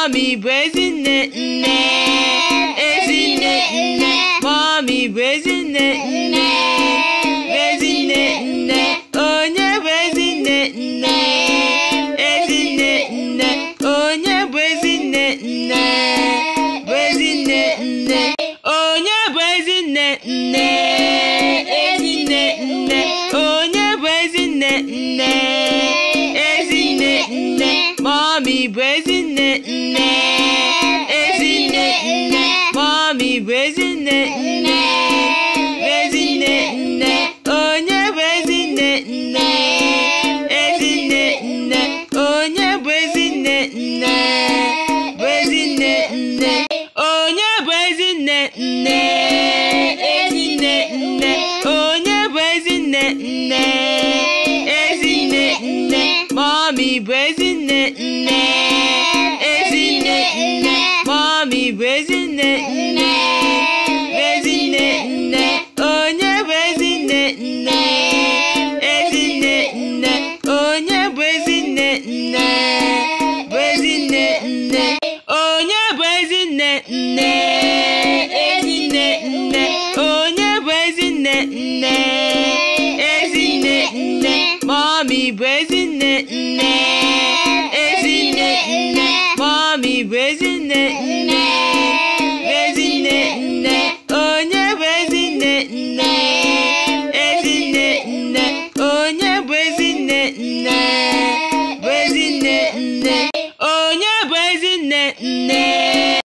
mọmi bụ ezinne nne ezinne nne mọmi bụ ezinne nne ezinne nne onye bụ ezinne nne ezinne nne onye bụ ezinne nne bụ nne onye bụ ezinne nne ezinne nne onye bụ ezinne nne ezinne nne mọmi bụ ezi Nè, now? nè, it now? Mommy, isn't nè, now? Isn't it now? Oh, yeah, isn't it now? Isn't it now? Oh, yeah, isn't it now? Isn't it now? Oh, yeah, isn't it now? Isn't Mommy, isn't it Onye Wezinne nne Wezinne nne Onye Wezinne nne Ezinne nne Onye bụ Ezinne nne Wezinne nne Onye bụ Ezinne nne Ezinne nne Mommy bụ Ezinne nne Ezinne Mommy bụ Ezinne name.